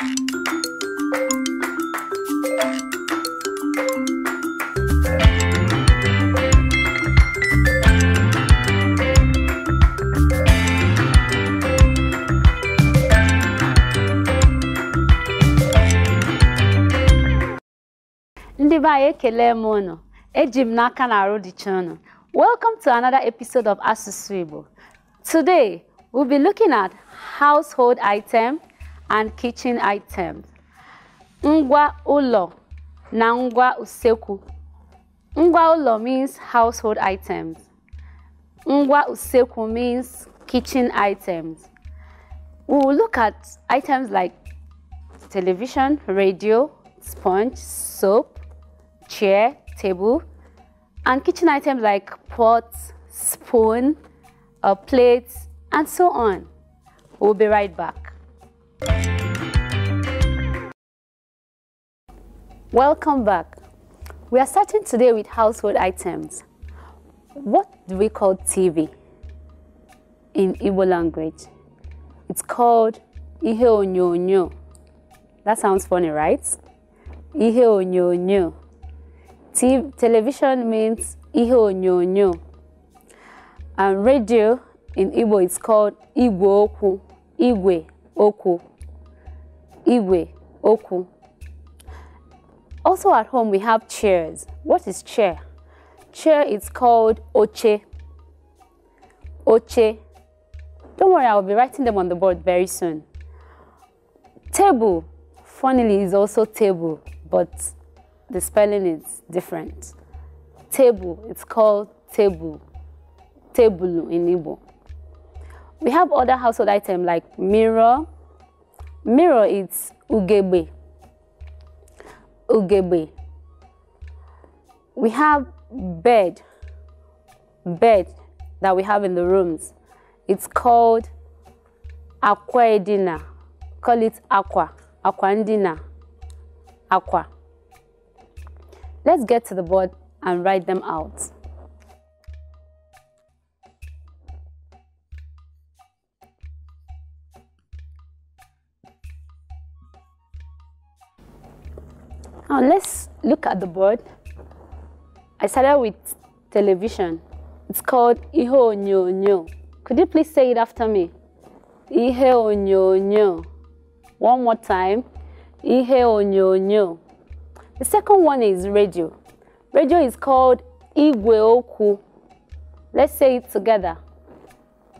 Ndị be anyị ekele m unu eji m n'aka na arụ dịcha unu Welcome to another episode of Asusu Igbo. Today, we'll be looking at household item and kitchen items. Ngwa ulo na ngwa useku. Ngwa ulo means household items. Ngwa useku means kitchen items. We will look at items like television, radio, sponge, soap, chair, table, and kitchen items like pots, spoon, uh, plates, and so on. We'll be right back. Welcome back. We are starting today with household items. What do we call TV in Igbo language? It's called ihe onyonyo. That sounds funny, right? Ihe onyonyo. TV, television means ihe onyonyo. And radio in Igbo is called Igwe oku. Igwe oku. Igwe oku. Also at home, we have chairs. What is chair? Chair is called oche. Oche. Don't worry, I'll be writing them on the board very soon. Table, funnily, is also table, but the spelling is different. Table, it's called table. Table in Igbo. We have other household items like mirror. Mirror, it's ugebe ugebe. We have bed, bed that we have in the rooms. It's called aqua edina. Call it aqua, aqua edina. aqua. Let's get to the board and write them out. Now let's look at the board. I started with television. It's called Iho Nyo Nyo. Could you please say it after me? Ihe onyonyo. One more time. Ihe onyonyo. The second one is radio. Radio is called Igwe Oku. Let's say it together.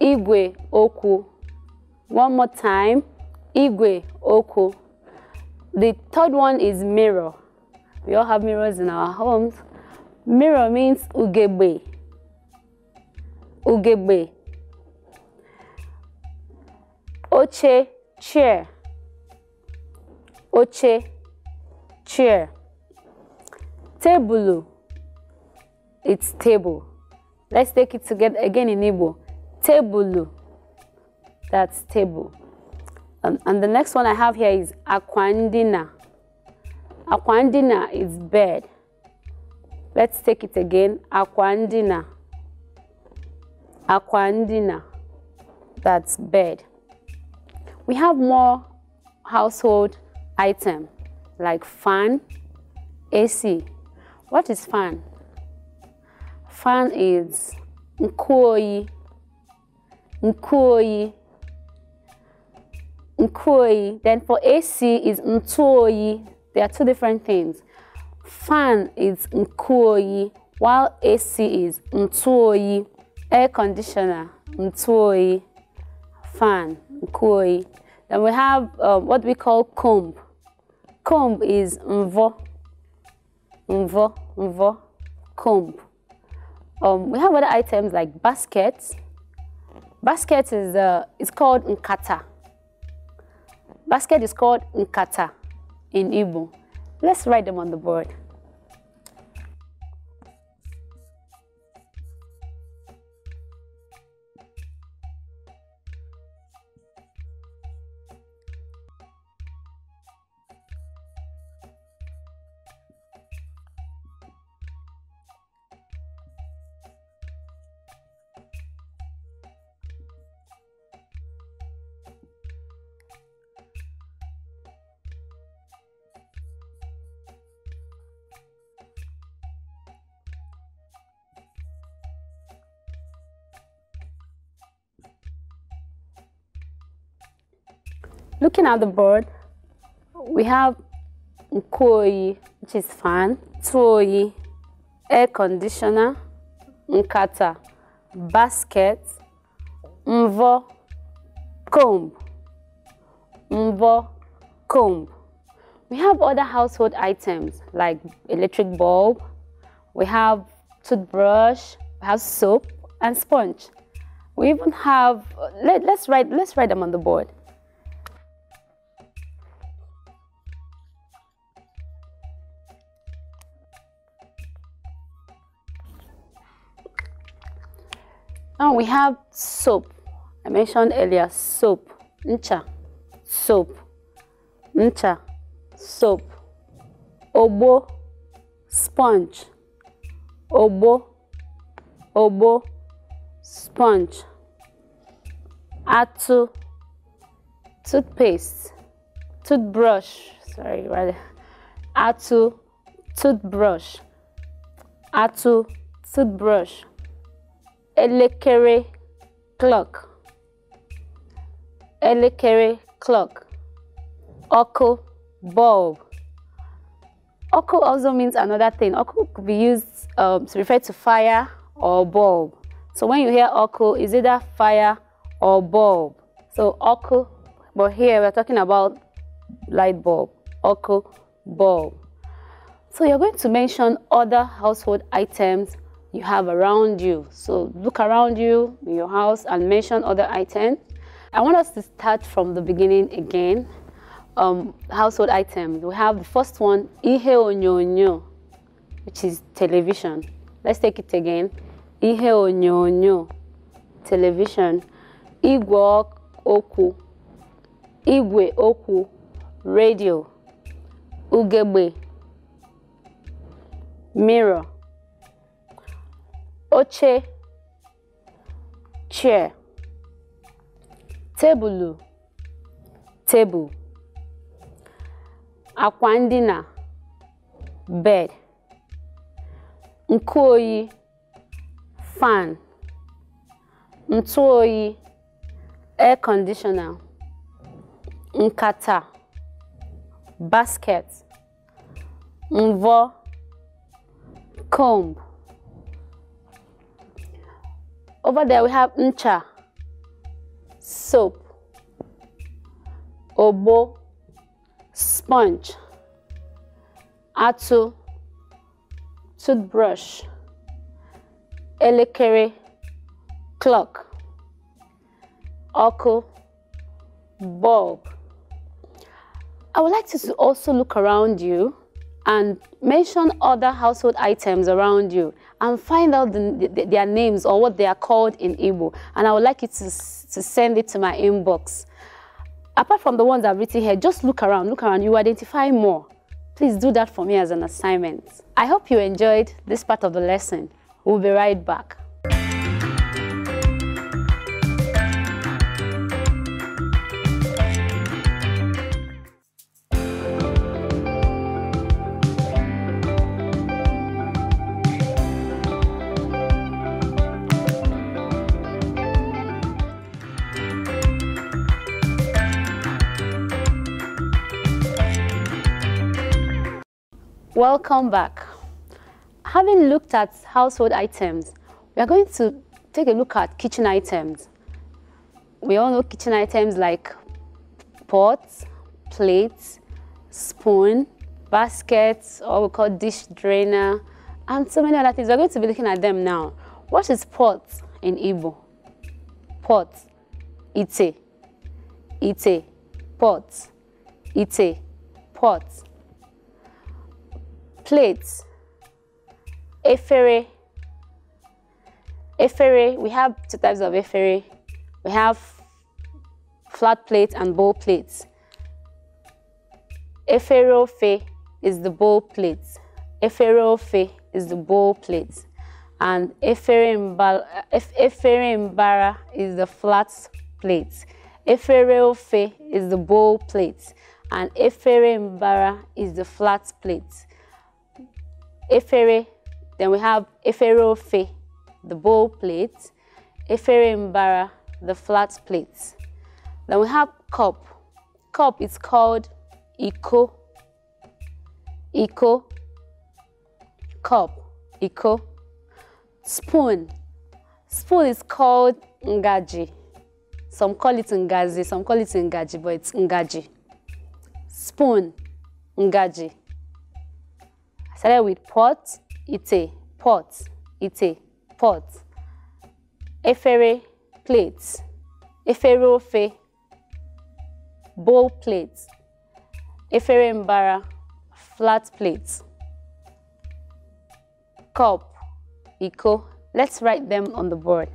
Igwe Oku. One more time. Igwe Oku. The third one is mirror. We all have mirrors in our homes. Mirror means ugebe. Ugebe. Oche, chair. Oche, chair. Table. It's table. Let's take it together again in Igbo. Table. That's table. Um, and the next one I have here is aquandina. Aquandina is bed. Let's take it again. Aquandina. Aquandina. That's bed. We have more household item like fan, AC. What is fan? Fan is nkoi. Nkoi Nkoi. Then for AC is Ntoi. They are two different things. Fan is Nkoi, while AC is Ntoi. Air conditioner, Ntoi. Fan, Nkoi. Then we have um, what we call comb. Comb is Mvo. Mvo, Mvo, comb. Um, we have other items like baskets. Basket is uh, it's called nkata. Basket is called Nkata in Igbo. Let's write them on the board. Looking at the board, we have Nkoi, which is fan, Tui, air conditioner, Nkata, basket, Mvo, comb, Mvo, comb. We have other household items like electric bulb, we have toothbrush, we have soap and sponge. We even have, let, let's, write, let's write them on the board. we have soap. I mentioned earlier soap, ncha, soap, ncha, soap, obo, sponge, obo, obo, sponge, atu, toothpaste, toothbrush, sorry, rather, atu, toothbrush, atu, toothbrush, elekere clock elekere clock ọkụ bulb ọkụ also means another thing ọkụ could be used um, to refer to fire or bulb so when you hear ọkụ is either fire or bulb so ọkụ but here we're talking about light bulb ọkụ bulb so you're going to mention other household items you have around you. So look around you in your house and mention other items. I want us to start from the beginning again. Um, household items. We have the first one, ihe onyonyo, which is television. Let's take it again. Ihe onyonyo, television. Igwe oku, igwe oku, radio. Ugebe, mirror. oche chair tebụlụ tebụl akwa ndina bed nkụ oyi fan ntụ oyi air conditioner nkata basket mvọ comb Over there we have ncha, soap, obo, sponge, atu, toothbrush, elekere, clock, oku, bulb. I would like to also look around you and mention other household items around you and find out the, the, their names or what they are called in Igbo. And I would like you to, to send it to my inbox. Apart from the ones I've written here, just look around, look around, you identify more. Please do that for me as an assignment. I hope you enjoyed this part of the lesson. We'll be right back. Welcome back. Having looked at household items, we are going to take a look at kitchen items. We all know kitchen items like pots, plates, spoon, baskets, or we call dish drainer, and so many other things. We're going to be looking at them now. What is pot in Igbo? Pot, ite, ite, pot, ite, pot plates, efere, efere, we have two types of efere. We have flat plates and bowl plates. Eferofe is the bowl plates. Eferofe is the bowl plates. And eferimbara is the flat plates. Efereofe is the bowl plates. And eferimbara is the flat plates efere, then we have efere ofe, the bowl plate, efere mbara, the flat plate. Then we have cup. Cup is called iko, iko, cup, iko. Spoon. Spoon is called ngaji. Some call it ngazi, some call it ngaji, but it's ngaji. Spoon, ngaji. Started with pot, ite, pot, ite, pot. Efere, plates. Efere ofe, bowl plates. Efere mbara, flat plates. Cup, iko. Let's write them on the board.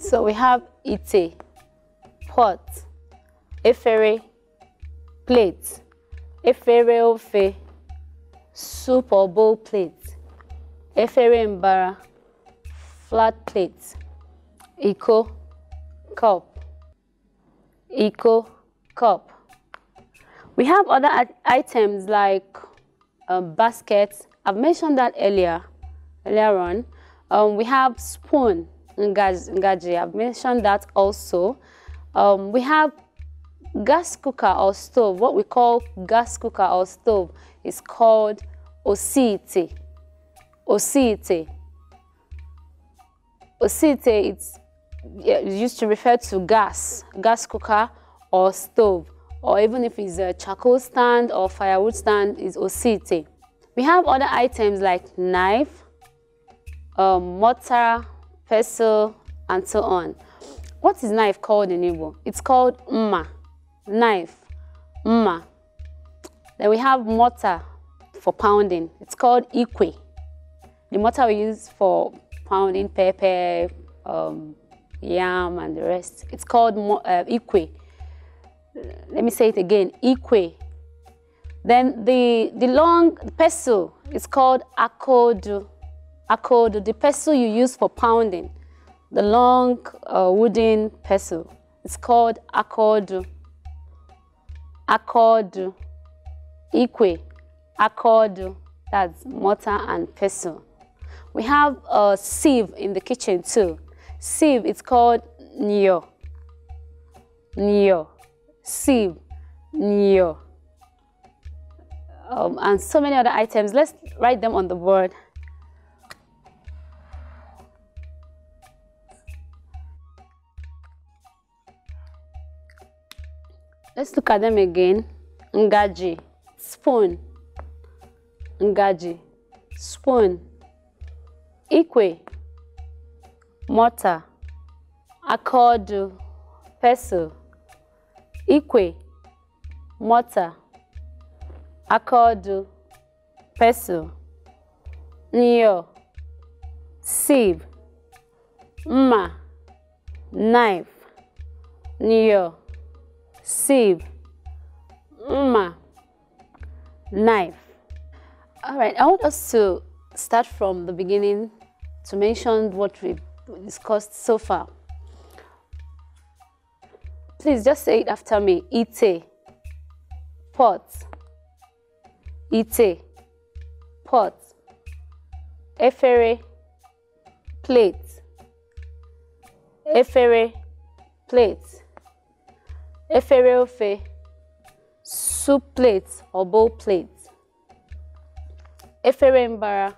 So we have ite, pot, efere, plate, efere ofe, soup or bowl plate, efere mbara, flat plate, iko, cup, iko, cup. We have other items like a um, baskets. I've mentioned that earlier, earlier on. Um, we have spoon. Ngaji. I've mentioned that also. Um, we have gas cooker or stove. What we call gas cooker or stove is called osite. Osite. Osite, it's used to refer to gas, gas cooker or stove, or even if it's a charcoal stand or firewood stand, is osite. We have other items like knife, um, mortar, pestle, and so on. What is knife called in Igbo? It's called mma, knife, mma. Then we have mortar for pounding. It's called ikwe. The mortar we use for pounding pepper, um, yam, and the rest. It's called uh, ikwe. Let me say it again, ikwe. Then the, the long pestle is called akodu akodo, the pestle you use for pounding, the long uh, wooden pestle. It's called akodo. Akodo. Ikwe. Akodo. That's mortar and pestle. We have a sieve in the kitchen too. Sieve, it's called nyo. Nyo. Sieve. Nyo. Um, and so many other items. Let's write them on the board. Let's look at them again. Ngaji, spoon. Ngaji, spoon. Ikwe, mortar. Akodu, pestle. Ikwe, mortar. Akodu, pestle. Nyo, sieve. Mma, knife. Nyo. sieve, mma, knife. All right, I want us to start from the beginning to mention what we discussed so far. Please just say it after me. Ite, pot. Ite, pot. Efere, plate. Efere, plate. efere ofe soup plate or bowl plate efere mbara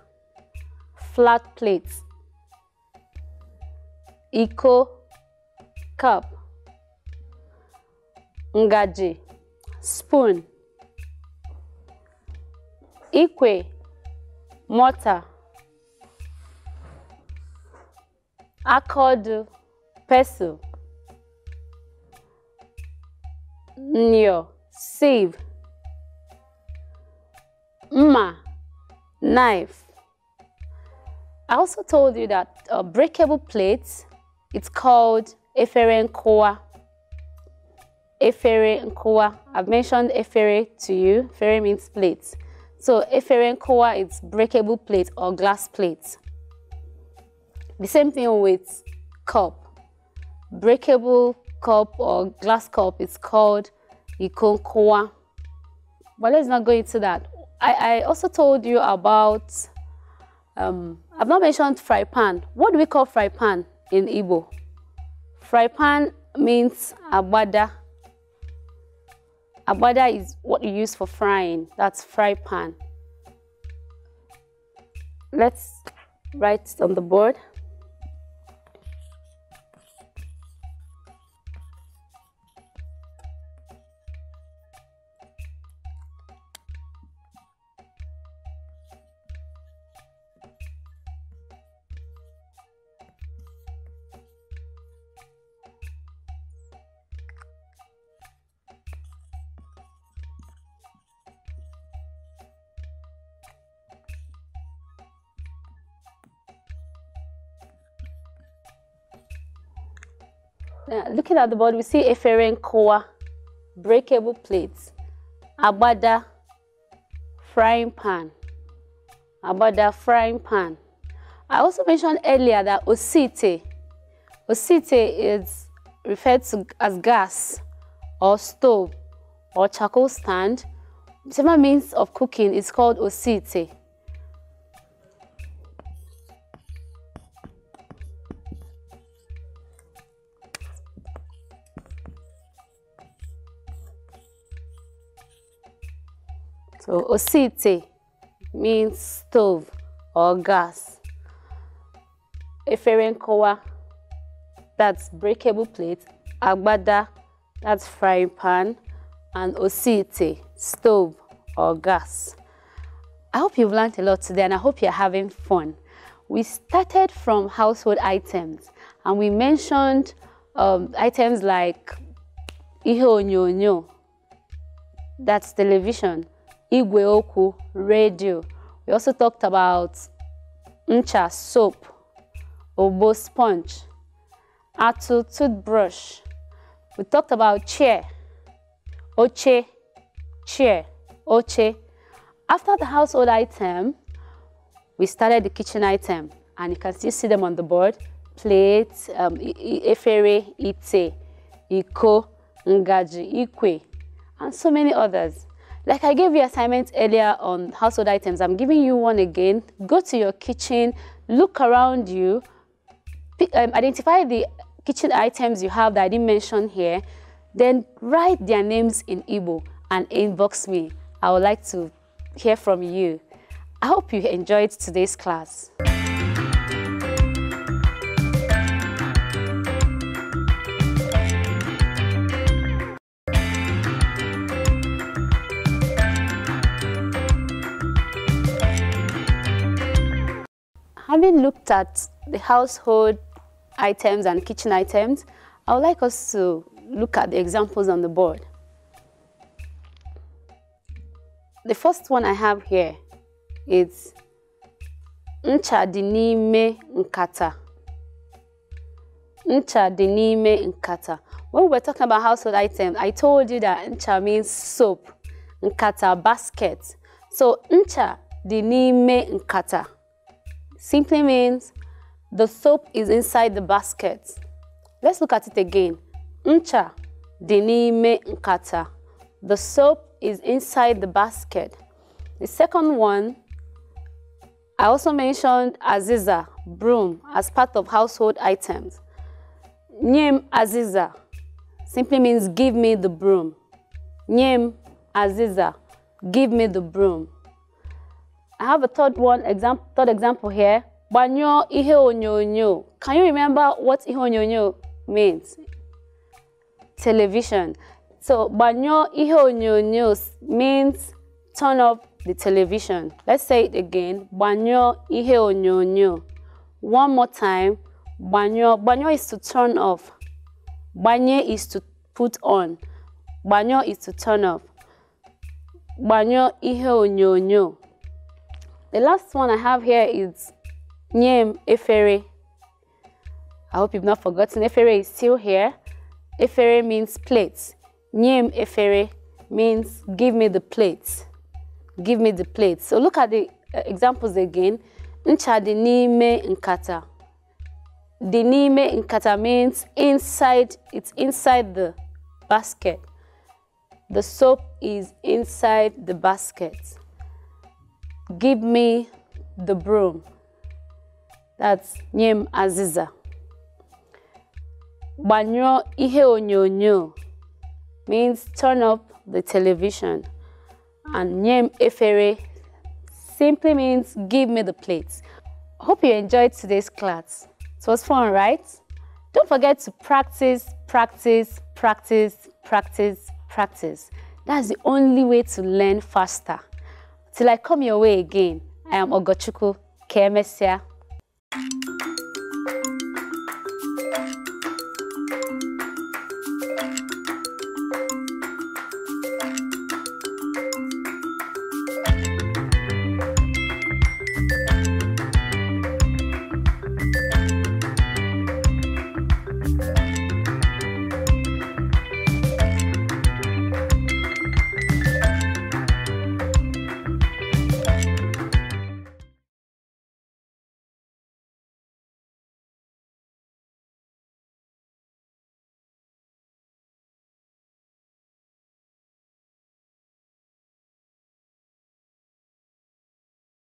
flat plate iko cup ngaji spoon ikwe mortar aka ọdụ nyo, save, Mma, knife. I also told you that a uh, breakable plate, it's called efere nkowa. Efere nkowa. I've mentioned efere to you. Efere means plate. So efere nkowa is breakable plate or glass plate. The same thing with cup. Breakable cup or glass cup is called ikonkwa. But let's not go into that. I, I also told you about, um, I've not mentioned fry pan. What do we call fry pan in Igbo? Fry pan means abada. Abada is what you use for frying. That's fry pan. Let's write on the board. Uh, looking at the board, we see Eferen Koa, breakable plates, Abada, frying pan. Abada, frying pan. I also mentioned earlier that Osite, Osite is referred to as gas or stove or charcoal stand. Whichever means of cooking is called Osite. So osite means stove or gas. Eferenkowa, that's breakable plate. Agbada, that's frying pan. And osite, stove or gas. I hope you've learned a lot today and I hope you're having fun. We started from household items and we mentioned um, items like ihe nyonyo, that's television, igweoku, radio. We also talked about ncha, soap, obo sponge, atu, toothbrush. We talked about chair, oche, chair, oche. After the household item, we started the kitchen item. And you can still see them on the board. Plate, um, efere, ite, iko, ngaji, ikwe, and so many others. Like I gave you assignments earlier on household items, I'm giving you one again. Go to your kitchen, look around you, um, identify the kitchen items you have that I didn't mention here, then write their names in Igbo and inbox me. I would like to hear from you. I hope you enjoyed today's class. Having looked at the household items and kitchen items, I would like us to look at the examples on the board. The first one I have here is ncha dinime nkata. Ncha dinime nkata. When we are talking about household items, I told you that ncha means soap, nkata, basket. So ncha dinime nkata simply means the soap is inside the basket. Let's look at it again. Ncha dinime nkata. The soap is inside the basket. The second one, I also mentioned aziza, broom, as part of household items. Nyem aziza simply means give me the broom. Nyem aziza, give me the broom. I have a third one example, third example here. Banyo ihe onyonyo. Can you remember what ihe onyonyo means? Television. So banyo ihe onyonyo means turn off the television. Let's say it again. Banyo ihe onyonyo. One more time. Banyo. Banyo is to turn off. Banye is to put on. Banyo is to turn off. Banyo ihe onyonyo. The last one I have here is Nyem Efere. I hope you've not forgotten. Efere is still here. Efere means plates. Nyem Efere means give me the plates. Give me the plates. So look at the uh, examples again. Nchadi n'ime nkata. Dinime n'ime nkata means inside, it's inside the basket. The soap is inside the basket give me the broom. That's Nyem Aziza. Banyo ihe onyonyo means turn up the television. And Nyem Efere simply means give me the plates. Hope you enjoyed today's class. It was fun, right? Don't forget to practice, practice, practice, practice, practice. That's the only way to learn faster. Till I come your way again, I am Ogochuku. Kemesia.